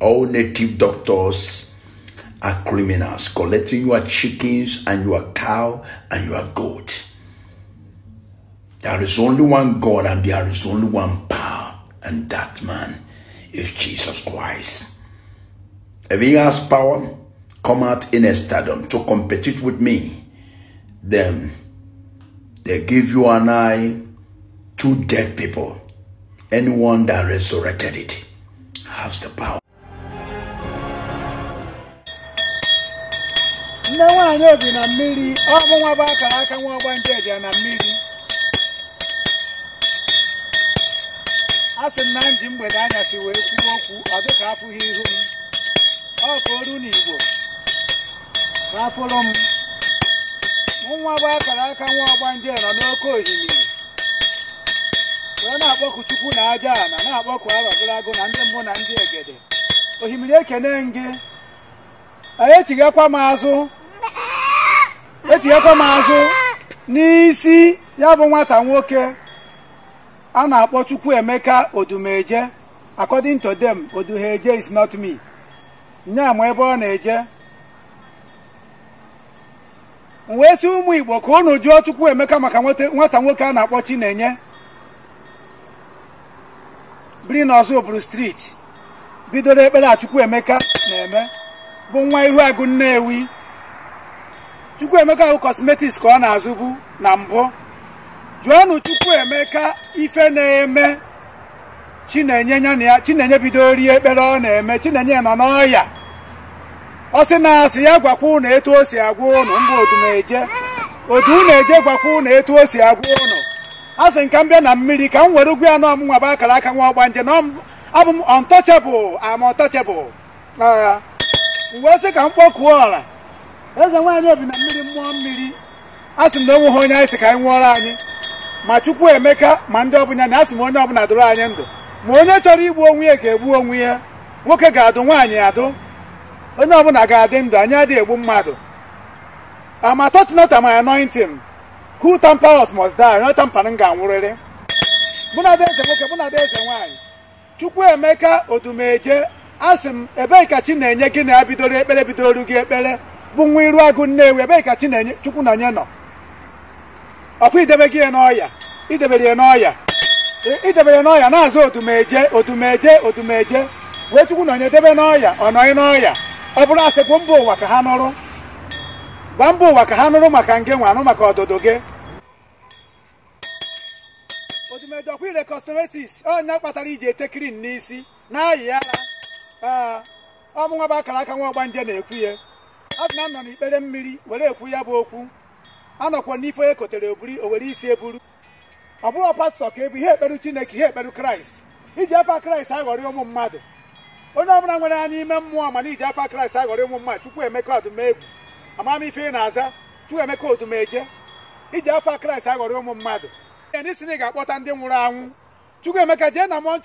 all native doctors are criminals, collecting your chickens and your cow and your goat. There is only one God and there is only one power, and that man is Jesus Christ. If he has power, come out in a stadium to compete with me, then they give you and I two dead people. Anyone that resurrected it has the power. nne nwaanyị obi na mmiri ọbụ bụ akara aka nwa ọgba nje na mmiri a sị m na nji mgbede si wee kwuo okwu ọ dị a pụghị ihu m ọ ka oru n'igbo ka apụrụ m bụ akara aka nwa ọgba nje nọ n'oke ohimiri wee na akpọkụ chukwu na aja na na-akpọku arọgịragụ na ndị mmụ na ndị egede ohimiri ekene gị etighekwa m azụ etighekwa m azụ n'isi ya bụ nwata nwoke a na-akpọ Chukwu Emeka Odumeje according to them Odumeje is not me nya ma ebe ọ na-eje m wee si ụmụ Igbo ka unu Chukwu Emeka maka nwata nwoke a na-akpọ enye biri n'ọzọ oburu street bidoro ekpere a Emeka na-eme bụ nwa ihu agụ Nnewi Chukwuemeka bụ kosmetiks ka ọ na-azụbu na mbụ jụọnụ Chukwuemeka ife na-eme Chinenye ya na ya Chinenye bido rie ekpere ọ na-eme Chinenye nọ n'ọya ọ na asị ya gwakwa ụnụ etu o si agwa ụnụ mba odumeje odu eje gwakwa ụnụ etu o si agwa ụnụ a nka m bịa na mmiri ka m were ugwu ya nọ bụ akara aka nwa ọgbanje na abụ m untouchable am untouchable wee sị ka m kpọkuo ọla eze nwaanyị obi na mmiri mmụọ mmiri asị m na o ha onye anyị sị ka anyị nwụọrọ anyị ma chukwu emeka ma ndị ọbụla na asị m onye ọbụla dụrụ anyị ndụ ma onye chọrọ igbu onwe ya ga-egbu onwe ya nwoke ga-adụ nwaanyị adụ onye ọbụla ga-adị ndụ anyị adịghị egbu mmadụ ama touch not am anointing who tampers must die onye ga-anwụrịrị mụ na eze nwoke mụ na eze nwaanyị chukwu emeka odumeje a sị m ebee ka chi na-enye gị na ya bidoro ekpere bidoro gị ekpere bụ nwa iru agụ nnewi ebee ka chi na-enye chukwu na nye nọ ọkwa idebe gị ya n'ọya idebere ya n'ọya e, idebere n'ọya na-azụ odumeje odumeje wee chukwu na onye debe n'ọya ọ nọghị n'ọya ọ bụrụ asị gwa mba ụwa ka ha nụrụ gwa mba ụwa ka ha nụrụ maka nge nwe anụ maka ọdụdụ gị otumeje ọkwa ire kọstọmetis onye kpatara iji ete krin n'isi na ayị ya ee ọmụnwa bụ akara aka nwa ọgbanje na-ekwu ya adịna nọ n'ikpere mmiri were ekwu ya bụ okwu anọkwa n'ife onye kotere oburi o were isi eburu ọ bụghị pastọ ka ebu ihe ekperu chineke ihe ekperu kraịst iji afa kraịst aghọrị ụmụ mmadụ onye ọbụla nwere ya n'ime mmụọ mana iji afa kraịst aghọrị ụmụ mmadụ chukwu emeka odumegwu ife ị na-aza chukwu emeka odumeje iji afa kraịst aghọrị ụmụ mmadụ e ndị na ị ga-akpọta ndị nwụrụ anwụ chukwu emeka jee na na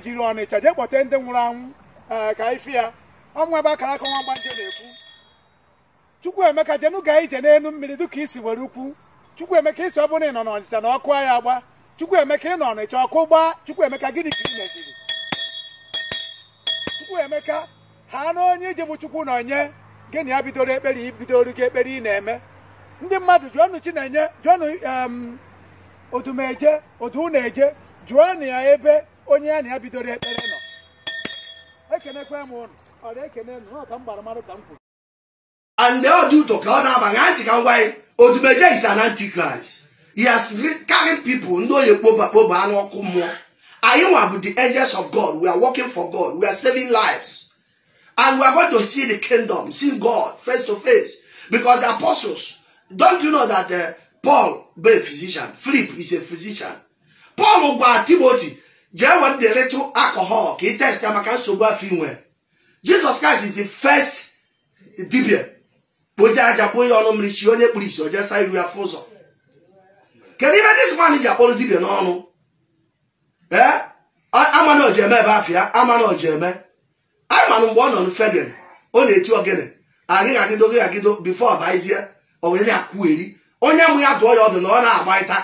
jiri ọnịcha jee kpọta ndị nwụrụ anwụ Ah, ka ife ya ọnwa ebe akara aka nwa mgbanje na-ekwu chukwuemeka jenu gaa ije n'elu mmiri dịka isi were ukwu emeka isi ọ bụrụ ị nọ n'ọnịcha na ọkụ ya agba chukwuemeka ị nọ ọnịcha ọkụ gbaa chukwuemeka gịnị ka ị meziri chukwuemeka ha na onye iji bụ chukwu na onye gịnị ya bidoro ekpere ibidoro gị ekpere ị na-eme ndị mmadụ jụọnụ chinenye jụọnụ odumeje odu na-eje jụọnụ ya ebe onye ya na ya bidoro ekpere and they dị ụtọ to God na-aba ntị ka m odumeje is an antichrist he has carried people No, ndị onye kpoba kpoba n'ọkụ mmụọ anyị nwa bụ the angels of god we are working for god we are saving lives and we are going to see the kingdom see god face to face because the apostles don't you know that uh, paul be a physician philip is a physician paul gwara timothy jee weta little alcohol ka ị test maka nsogbu afọ inwe Jesus Christ dị the first dibia kpoje aja kpo ya ọnụ mmiri si onye kpuru isi oje saa iru afọ ụzọ kedu ihe dis man ji akpọrọ dibia n'ọnụ ee eh? amana ojeme ebe afịa amana ojeme anyị mana mgbe ọ nọ fegen ọ na-eti ogene agịghị agịdo gịghị agịdo bifo ọbaizie owere akụ eri onye mụ ya dụọ ya ọdụ na ọ na-agbarịta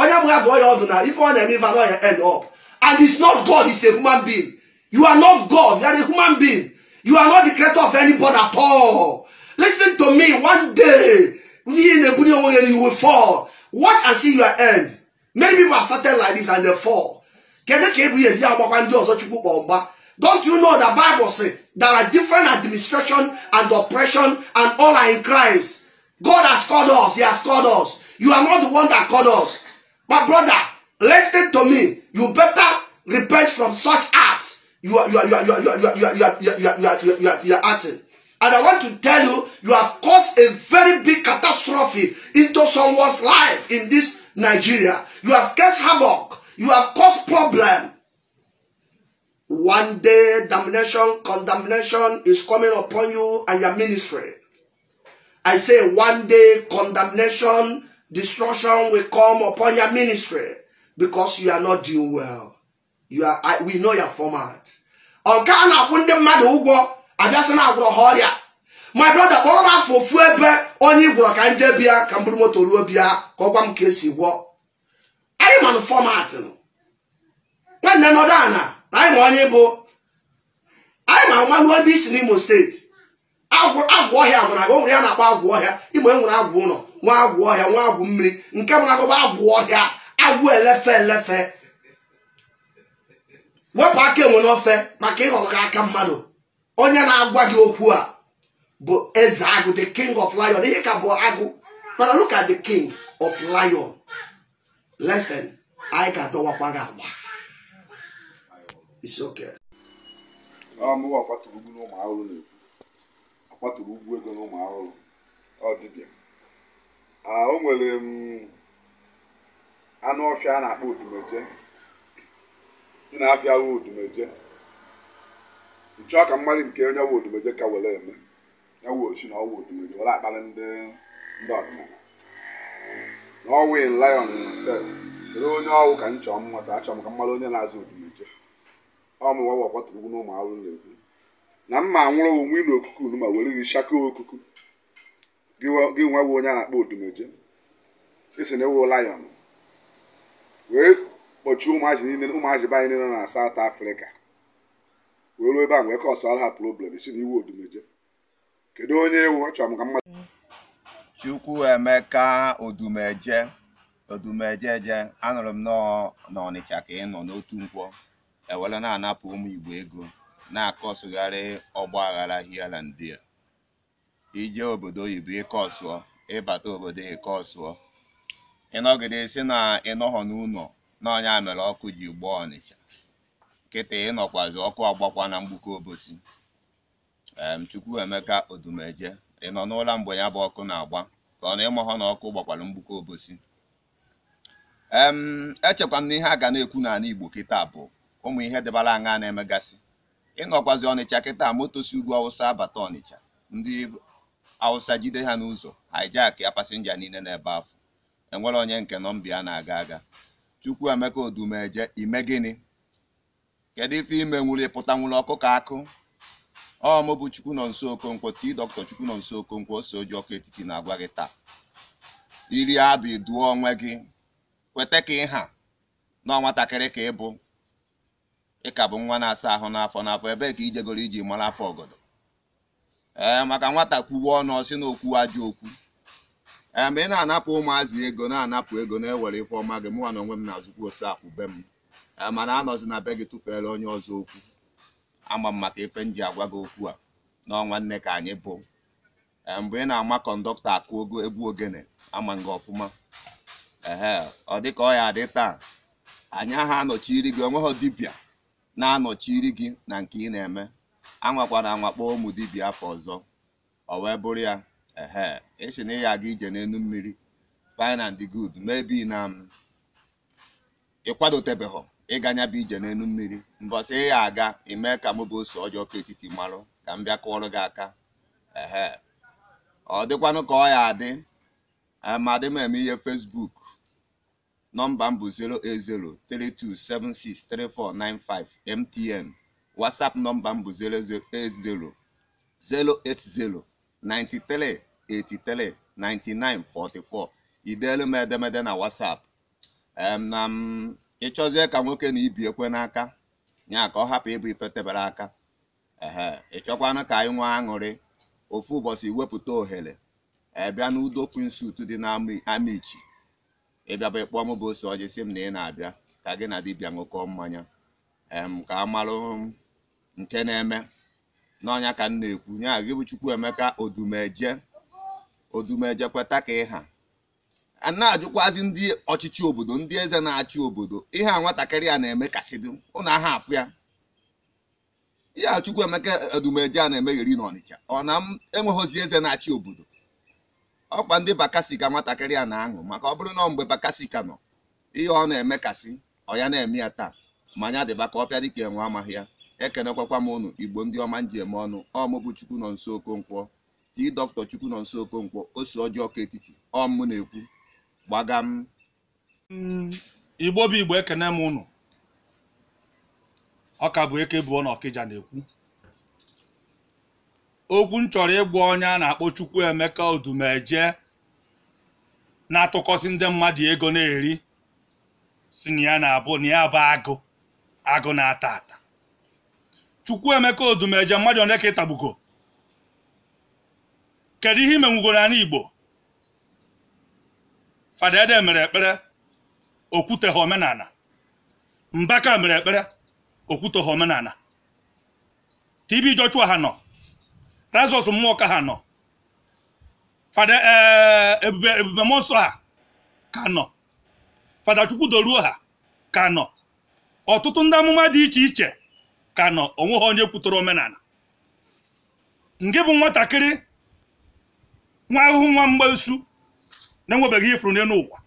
onye mụ ya dụọ ya ọdụ na ife ọ na-eme ife ya end up And it's not God, it's a human being. You are not God, you are a human being. You are not the creator of anybody at all. Listen to me, one day, you will fall. Watch and see your end. Many people have started like this and they fall. Don't you know the Bible says there are different administration and oppression and all are in Christ. God has called us. He has called us. You are not the one that called us. My brother, Listen to me. You better repent from such acts. You are you are you are you are you are you are you are you are you are you acting. And I want to tell you, you have caused a very big catastrophe into someone's life in this Nigeria. You have caused havoc. You have caused problem. One day, damnation, condemnation is coming upon you and your ministry. I say one day, condemnation, destruction will come upon your ministry. because you are not doing well you are I, we know your format ọ a na-akwụ ndị mmadụ ụgwọ abịasị na-agwụrọ ha ọrịa my brother kpọrọ m afọ ofu ebe onye gwọrọ ka m jee bịa ka m moto ruo bịa ka ọ gwa m ka esi gwọ anyị manụ fọmat nwanne nọdụ ana na anyị ma onye bụ anyị ma mmanụ ebe isi n'Imo steeti agwụ ọhịa mara o nwere ya na-akpọ agwụ ọhịa Imo enwere agwụ ụlọ nwa agwụ ọhịa nwa agwụ mmiri nke mụ na agụba agwụ ọhịa agwụ elefe elefe wepụ aka enwe n'ofe maka ịghọrọ gị aka mmadụ onye na-agwa gị okwu a bụ eze agụ the king of lion ihe ka bụ agụ mana look at the king of lion lesson anyị ga-adọwakwa gị agba isi oke ọmụwa akwatụrụ ugwu n'ụmụ ahụrụ na-ekwu akwatụrụ ugwu ego n'ụmụ ahụrụ ọ dịbịa ah, o nwere m mm, anụ ọfịa a na-akpọ odumeje ị na-afịa wụ odumeje nchọọ ka mmadụ nke onye wụ odumeje ka were eme ya wụ osi na ọwụ odumeje were akpali ndị ndị ọdịnala na ọwụ lion himself kedu onye ọwụ ka m chọọ mmata achọrọ m ka mmadụ onye na-azụ odumeje ọmụwa wakpatụrụ ugwu na ụmụ ahụhụ na-ekwu na mma anwụrụ onwe na okuku unu ma were gị shaka okuku gị nwa bụ onye a na-akpọ odumeje isi na ewu lion wee kpọchie ụmụazị niile ụmụazị be anyị niile nọ na South afrịka wee ruo ebe a wee kọsara ha problem si na iwu odumeje kedu onye ewu ọ chọrọ ka mmadụ Chukwuemeka odumeje odumejeje anụrụ m na Ọnịcha ka ị nọ n'otu nkwọ ewere na-anapụ ụmụ Igbo ego na-akọsụgharị ọgba aghara hialandia ije obodo oyibo ịkọsụọ ịbata obodo ịkọsụọ ịnọgidesi na ịnọghọ n'ụlọ n'ọnya mere ọkụ ji gbaa ọnịcha nkịta ịnọkwazi ọkụ agbakwa na mgbuke obosi Chukwuemeka Odumeje ịnọ n'ụla n'ụlọ mgbe ya bụ ọkụ na-agba ka ọ na ịmahọ na ọkụ gbakwara mgbuke obosi echekwa m na ihe a ga na-ekwu n'ala Igbo kịta bụ ụmụ ihe dịbara aṅa na-emegasị ịnọkwazi ọnịcha kịta moto si ugwu awụsa abata ọnịcha ndị awụsa jide ha n'ụzọ hijack ya pasenja niile n'ebe afọ enwere onye nke nọmbịa na-aga aga chukwu emeka odumeje ime gịnị kedu ife ime nwuru ịpụta nwuru ọkụ ka akụ ọmụbụ bụ chukwu nọ nso okonkwo tii dọkịta chukwu nọ nso okonkwo ose oji ọkụ etiti na-agwa gị taa iri abụ iduo onwe gị kweta ka ịha na nwatakịrị ka ịbụ ịka bụ nwa na-asa ahụ n'afọ n'afọ ebee ka ijegoro iji mara afọ ọgọdọ ee maka nwata kwuwe ọnụ ọsị na okwu ajọ okwu ee eh, ị na-anapụ ụmụazị ego na-anapụ ego na-ewere ife ọma gị mụnwa na onwe m na azụkwu ose akwụ be m eh, mana anọzi na be gị tụfere onye ọzọ okwu ama m maka ife m ji agwa gị okwu a n'ọnwa nne ka anyị bụ eh, mgbe ị na-ama kọndọktọ akụ ogo egwu ogene ama gị ọfụma ee ọ dịka ọ ya adị taa anyị aha anọchiri gị onweghị dibịa na-anọchiri gị na nke ị na-eme anwakwara anwakpọ ụmụ dibịa afọ ọzọ o wee bụrụ ya ehe esi na ị aga ije n'enu mmiri fine and good maybe na um, ịkwadotebeghọ ịga nya bụ ije n'elu mmiri mbọsị ị aga ime ka mụbụ bụ ose ọjọọ ka etiti marụ ka m bịa kụọrọ gị aka ọ dịkwanụ ka ọ ya adị um, dị m eme ihe fesbuk nọmba m bụ 08032763495 MTN WhatsApp nọmba m bụ 0800. 080 93 83 99 44 ideelu m edemede na WhatsApp na m ịchọzie ka nwoke na ibi ekwe n'aka ya ka ọ hapụ ịbụ ifetebere aka ehe ịchọkwana ka anyị nwee aṅụrị ofu ụbọchị wepụta ohere ebịa n'udo kwinsut dị na amichi ịbịaba ịkpọ m bụ ose ọjị sị m na ị na-abịa ka gị na dibịa ṅụkọ mmanya ka a marụ nke na-eme n'ọnya ka nna na-ekwu nya gị chukwu emeka odumeje odumeje kweta ka ịha a na-ajụkwazi ndị ọchịchị obodo ndị eze na-achị obodo ihe a nwatakịrị a na-eme kasịdụ ụnụ aha afụ ya ihe a emeka odumeje a na yiri n'Ọnịcha ọ na m enweghịzi eze na-achị obodo ọkwa ndị bakasika ka nwatakịrị a na-aṅụ maka ọ bụrụ na mgbe bakasika ka nọ ihe ọ na-eme kasị ọ ya na-eme ya taa ma anya dịba ka ọpịa dịka enwe amaghị ya ekenekwakwa m ụnụ igbo ndị ọma nji eme ọnụ ọmụbụ chukwu nọ nso okonkwo tii dọkịta chukwu nọ nso okonkwo ose ọjọọ ka etiti ọmụ na-ekwu gbaga m mm, igbo bụ igbo ekene m ụnụ ọka bụ eke bụ na ọkịja na-ekwu okwu m chọrọ ịgwa onye a na-akpọ chukwu emeka odumeje na-atụkọsị ndị mmadụ ego na-eri si na ya na-abụ na ya bụ agụ agụ na-ata ata Chukwuemeka Odumeje mmadụ onye ka ịtagbuko kedu ihe imenwugoro anyị Igbo fada mere ekpere ha omenala Mbaka mere ekpere ha omenala TB Joshua ha nọ Razọs mmụọ ka ha nọ fada eh, ebube ebube nsọ ha ka nọ fada doruo ha ka nọ ọtụtụ ndị amụma dị iche iche ka nọ onweghị onye kwutọrọ omenala nke bụ nwatakịrị nwa ahụhụ nwa mgbasu na-enwebeghị ifuru n'elu ụwa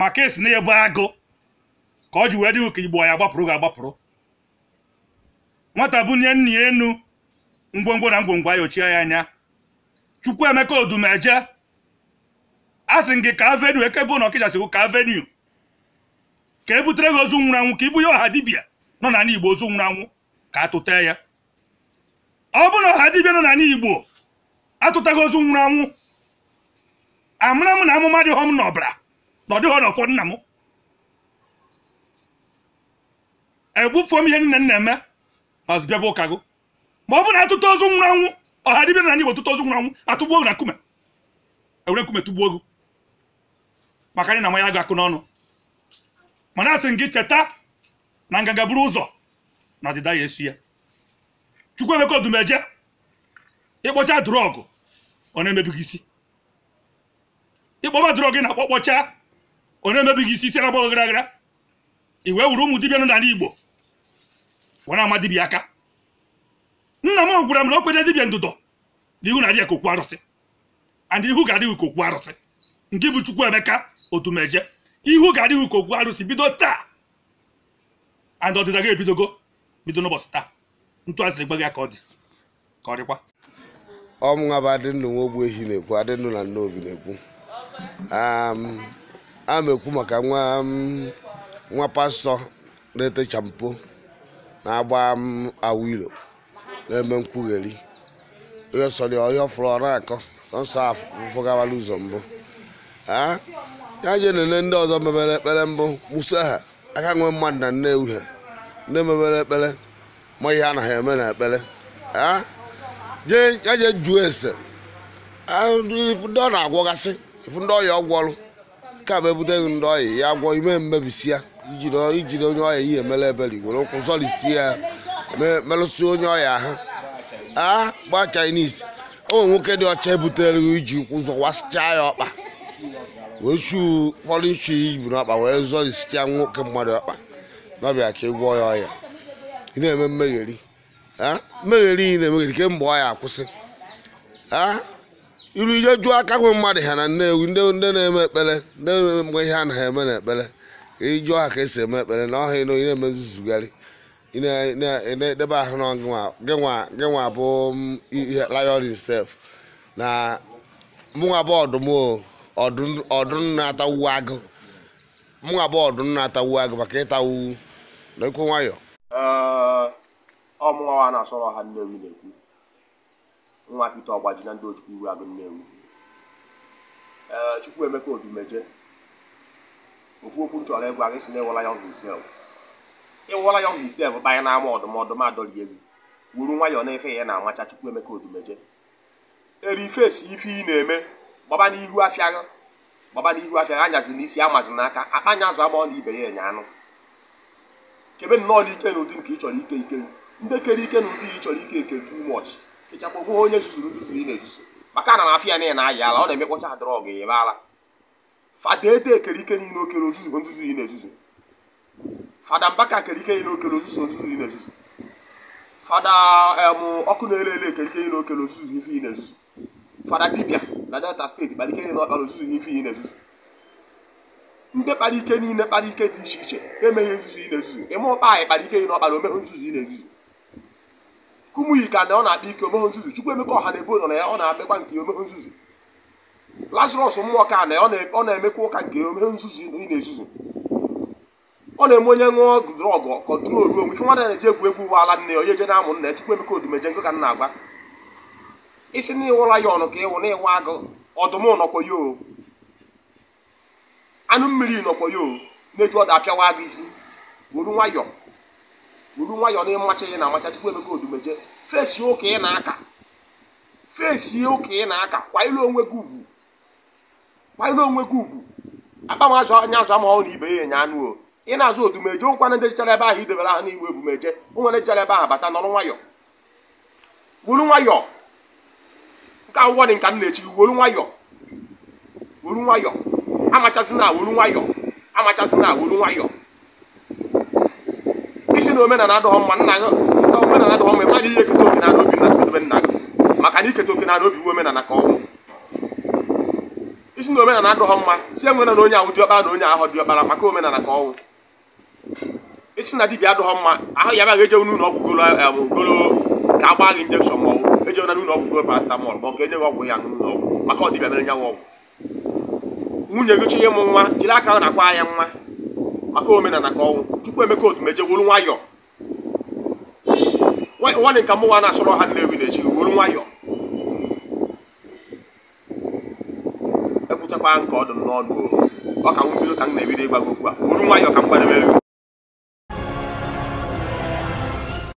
maka esi na ebe agụ ka ọ ji wee dịghị ka igbo ya gbapụrụ ga-agbapụrụ nwata nye nna ya enu ngwongwo na ngwongwo ayochie ya anya Chukwuemeka Odumeje a sị gị ka avenu ekebe na ọkịja siwu ka avenu ka ebutere gị ozu nwụrụ anwụ ka ibu ya ọha dibịa nọ n'ala igbo ozu nwụrụ anwụ ka atụta ya ọ bụ na ọha dibịa nọ n'ala igbo atụtaghị ozu nwụrụ anwụ amara m na amụma dịghọ m n'ọbara na ọ dịghọ na ụfọdụ nna m egbufuo m ihe nne nna eme ma zụbịa bụ ụka gụ ma ọ bụ na atụta ozu nwụrụ anwụ ọha dibịa nọ n'ala igbo tụta ozu nwụrụ anwụ atụgbuo na nkume ewere nkume tụgbuo gụ maka anyị na nwa ya ga-akụ n'ọnụ mana asị m gị cheta na nganga buru ụzọ na ọdịda ya esi ya Chukwuemeka Odumeje ịkpọcha drọgụ ọ na-emebighị isi ịkpọba drọgụ na akpọkpọcha ọ na-emebighị isi isi na-agbaghị gara iwe wee wuru ụmụ dibịa nọ n'ala Igbo were ama dibịa aka nna m gwara m na okwenye dibịa ndụdọ na ihu na-adịghị ka arụsị and ihu ga-adịghị kokwu arụsị nke bụ emeka Odumeje ihu ga-adịghị kokwu arụsị bido taa and ọdịda gị ebidogo bido n'ụbọchị taa ntu asịrị gba gị ka ọ dị ka ọ dịkwa ọmụnwa bụ adị ndụ nwa ogbu ehi na-ekwu adị na nne obi na-ekwu um, a na-ekwu maka nwa um, nwa pastọ na-ete champo na-agba um, awilo na-eme nkwugheri onye sọrọ onye ọfụrụ ọrụ akọ sọnsọ afụgawala ụzọ mbụ ya je nene ndị ọzọ mebere ekpere mbụ musa ha aka nwe mmadụ na nne uhie nne mebere ekpere ma ihe anaghị eme na ekpere jee juo ese ndị ọ na-agwọgasị ifu ndị ọya ọgwọrụ ka bụ ebuteghị ndị ọya ya gwọ ime mmebisi ya ijiri onye ọya ihe mere ebere were ụkwụ zọrisi ya merụsị onye ọhịa ha a gba Chinese ụmụ nwoke dị ọcha ebutere iji ụkwụ zọwasịcha ya ọkpa wee chuo ụfọdụ ichu ibu n'akpa wee zọ isicha nwoke mmadụ akpa n'ọbịa ka ị gwọọ ya ọya ị na-eme mmegheri mmegheri ị na-emegheri kemgbe ọ ọya akwụsị iru ije jụọ aka nwe mmadụ ha na nnewi ndị na-eme ekpere ndị mgbe ihe a na ha eme na ekpere ijụọ ha ka esi eme ekpere na ọha ịnọ ị na-eme nzuzugharị ị na-edebe ahụ na gị nwa bụ ihe layorin sef na mụnwa bụ ọdụm o ọdụm na-atawu agụ mụnwa bụ ọdụm na-atawu agụ maka ịtawu n'ekwu nwayọ ọmụnwa a na-asọrọ ha nnewi na-ekwu nwa pete ọgbaji na ndị ojukwu uru agụ nnewi chukwu emeka odumeje ofu okwu nchọrọ egwu aga si na ịwụla ya hisef ịwụla ya hisef banye n'ama ọdụm ọdụm adọrị egwu wuru nwayọ na-efe ya na-amacha chukwu emeka odumeje eri ifesi ife ị na-eme gbaba n'ihu afịa gị gbaba n'ihu afịa gị anyazi n'isi amazi n'aka akpa anya azụ agbaọ na ibe ya enye anụ kebe nnọọ n'ike na ụdị nke ị chọrọ ike ike ndị kere ike na ụdị ị chọrọ ike eke too much kechakwa gbuo onye zuzuru nzuzu ị na-ezuzu maka na afịa niile na-ayị ala ọ na-emekpọcha drọgụ ebe ala fada ede kere ike niile okere ozuzu nzuzu ị na-ezuzu fada mbaka kere ike niile okere ozuzu nzuzu ị na-ezuzu fada ọkụ na-ele ele ekere ike niile okere ozuzu ife ị na-ezuzu fada dibia na delta steeti kpalike ike niile ọkpara ozuzu ife ihe na-ezuzu ndị kpara ike niile kpara ike dị iche iche emeghị nzuzu ị na-ezuzu ịma ụkpa anyị kpara ike niile ọkpara omeghe nzuzu ị na-ezuzu kumuyi ka na ọ na-akpa ike omeghe nzuzu chukwu emeka ọha na ebo na ya ọ na-amekwa nke omeghe nzuzu lazarus mmụọ ka na ọ na-emekwa ụka nke omeghe nzuzu ị na-ezuzu ọ na-eme onye ṅụọ drọgụ kọntrol ruo onwe ife nwa na-eji egwu egwu ụwa ala nne ya onye je na-amụ nna ya chukwu emeka odumeje nkụ ka m na-agwa isi na ịwụra ya ọnụ ka ịwụ na ịwa agụ ọdụm nọkwa ya anụ mmiri nọkwa ya o na-eju ọdụ apịawa agụ isi wuru nwayọ wuru nwayọ na ịmacha ya na amacha chukwu emeka odumeje fesi ụka ị na-aka fesi ụka ị na-aka kwanyere onwe gị ugwu kwanyere onwe gị ugwu agbanwe azụ anya azụ amahụ na ibe ya enye anụ o ị na-azụ odumeje nkwana dejichara ebe ahụ idebere ha n'igwe ebumeje onwere jichara ebe ahụ bata nọrọ nwayọ wuru nwayọọ. nke awụwa dị nka m na-echi wolu nwayọ wolu nwayọ amachazina wolu nwayọ na wolu nwayọ isi na omenala adịghọ mma nna omenala adịghọ mma mmadụ ihe eketa oke na obi na nkedobe nna gị maka na oke na obi iwu omenala ka isi na omenala adịghọ mma si e na onye ahụ diọkpara na onye ahụ diọkpara maka omenala ka ọnwụ isi na dibia adịghọ mma ahụ ya baghị eje n'ụlọ ọgwụ golo golo ga-agba gị injekshọn ma ọnwụ ejena n'ụlọ ọgwụ go paracetamol ma ọ ga-enye ọgwụ ya n'ụlọ ọgwụ maka ọdịbịa mere nyanwụ ọgwụ nwunye gị chọọ ịmụ nwa jiri aka ahụ na-akwa ya nwa maka omenala ka ọnwụ chukwu emeka otu meje wolu nwayọ nwanne nka mụnwa na-asọrọ ha nnewi na-echi wolu nwayọ ekwuchakwa nke ọdụ n'ọnụ ọ ka m bido ka m na-ebido ịgwa gị okwu a wolu nwayọ ka m kwadebere